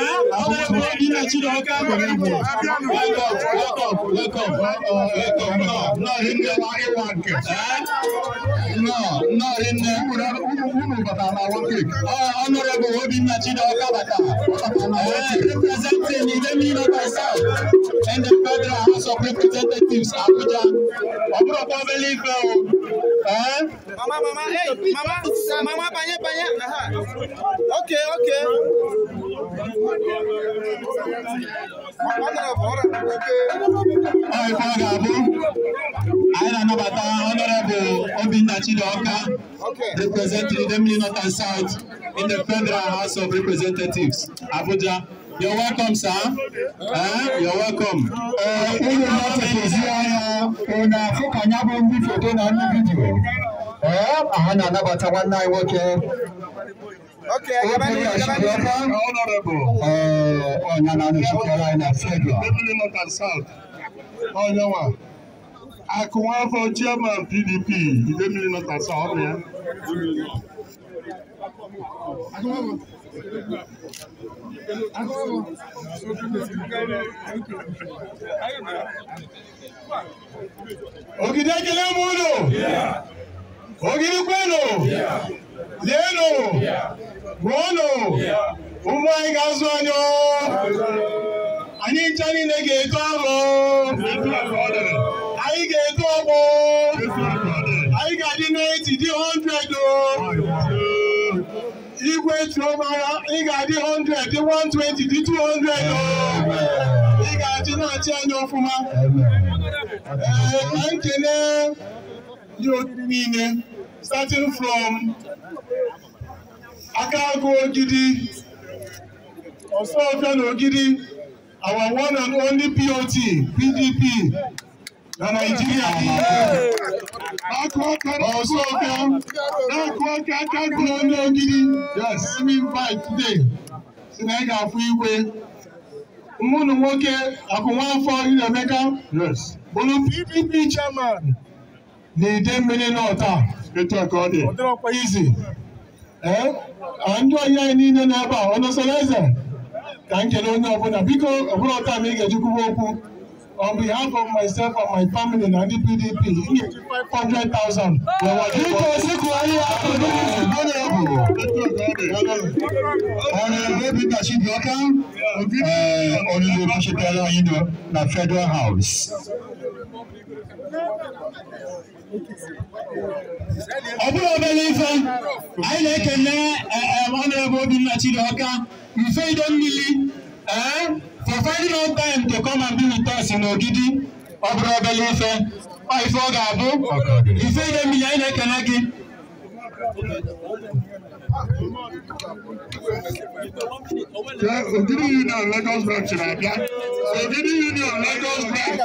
ọmọ ẹgbẹ́ myself and the Federal House of Representatives, Abuja. Ọ̀bùrọ̀ kan fẹ́ lè fẹ́ o. Mama, mama, hey, mama, mama, panya, panya. Okay, okay representing the North and South in the Federal House of Representatives, Abuja. You're welcome, sir. Eh? You're welcome. Ụlọ na-atụtụzi anya ọ na-afụ ka anya bụ ndị foto na ndị vidiyo. Ee, ha na-anabata nwanne anyị Okay, Gabani, Gabani. Honorable, uh, Onyanani Shukalaina Fedwa. Deputy North and South, Onyawa. Oh, Akunwa for Chairman PDP, Deputy North and South, Onya. Akunwa for Ogidegele mulo. Ogidi kwelo. Lelo. Yeah. Gbuonu ụgbọ anyị ga-azụ anyị oh! anyị ncha niile ga-eto arụ oh! anyị ga-eto ọgbọ oh! anyị ga-adị n'eti dị hundred o igwe tiomara ị ga-adị 100 dị 120 dị hundred o ị ga-adị na-achị anya ọfụma ee nkene ndị oriri niile starting from aka agụ Ogidi, Ọsọọfịa na Ogidi, our one and only POT, PDP, na Naịjirịa niile. Akụ aka na Ọsọọfịa, na-akụ aka Akagụ onye Ogidi, yes, semi invite si na ị ga-afụ igwe. Nwụnụ nwoke Akụnwafọ Ilemeka, yes, bụrụ PDP chairman na Idemmili North a. Etu a ka ọ dị. Izi. Eh? andụ ọhịa anyị niile nọ a ọ nọsọrọ eze ka m kele onye ọbụla biko ọbụla ọta m ị ga-ejikwuwe okwu on behalf of myself and my family na ndị PDP nye 500,000 biko sikụ ahịa akụkụ honorable honorable Peter Chibioka onye okwuchitela anyị na Federal House ọbụrụ obere ife anyị na-ekene e, e, honorable Obinna Chidioka ife ido mmiri ee for finding out time to come and be with us n'ogidi ọbụrụ obere ife ife ọ ga-abụ ife ido mmiri anyị na-ekene gị Ogidi Union Lagos branch na-abịa Ogidi Union Lagos branch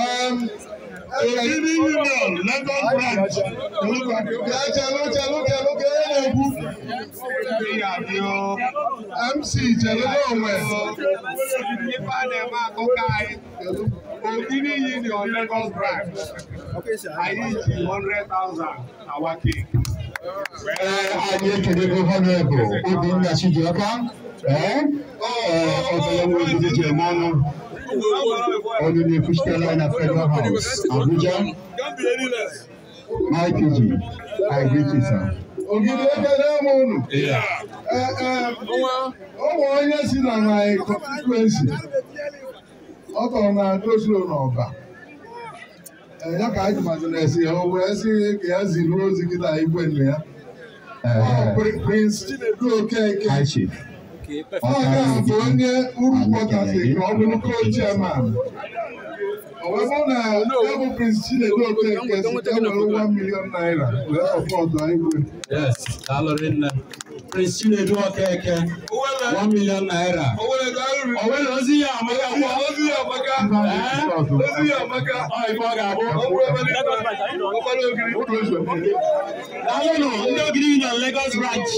um, receiving union london branch orúkọ akéwà jẹ lókè lókè lókè ẹlẹgùn mc jẹlẹ lọwẹ òbí ní union lagos branch ayé ìjì hundred thousand our king. ẹ ayé kẹdẹgbẹ honourable obìnrin àṣejù ọkà ẹ ọbẹ ẹwọn ìdíje mọnú. onu n'efu Fish Line House, Abuja. My PG, I greet you, sir. Ogidi ebe na unu eh, eh, ụmụ onye si na anyị kọnstituensi ọ tọrọ na dozilo eh, ya ka anyị na o wee ka ya ziri ozi gị na igwe nne ya Prince Chinedu Okeke bụ onye urukwọtasịrị ka ọ bụrụ co-chairman ọ bụ na ya bụ Prince Chinedu Okeke si ka were 1 million naira wee sọpọtụ anyị Prince Chinedu Okeke one million naira. ọ̀wé lọ sí àmọ́ká fún ọ. lọ́sí àmọ́ká. lọ́sí àmọ́ká. ìfọ̀ gàbọ̀. daalụnụ ndị ogiri nọ Lagos branch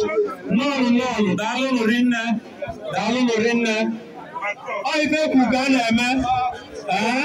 nọọnụ nọọnụ daalụnụ rinne daalụnụ rinne ọ ife kwu ka a na-eme ee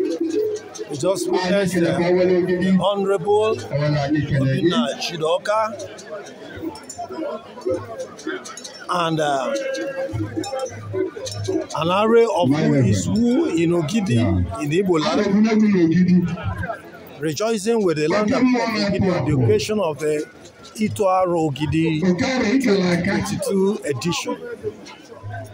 just witnessed uh, the Honorable Obina Chidoka and uh, an array of who is who in Ogidi yeah. in Igbo land, rejoicing with the land of Ogidi, the occasion of the Itoaro Ogidi 22 edition.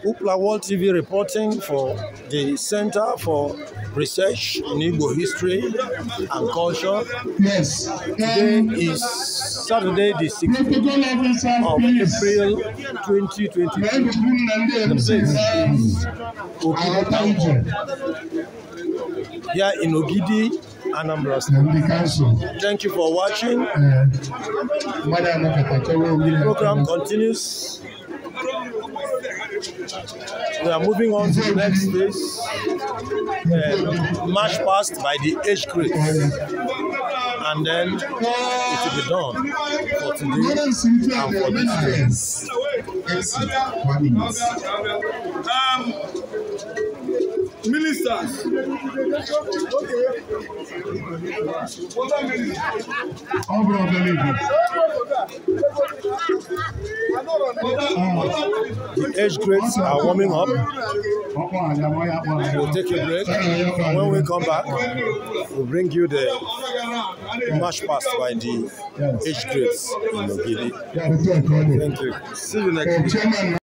Upla World TV reporting for the Center for Research in Igbo History and Culture. Yes. Today um, is Saturday, the 16th of April 2022. The place is here in Ogidi, Anambra State. Thank you for watching. Uh, the program continues. We are moving on to the next stage. Um, uh, match passed by the age group, And then it will be done for today and for this year. Um, ministers. All of the age grades are warming up. We'll take a break. and When we come back, we'll bring you the march past by the age grades in Ogidi. Thank you. See you next uh, week.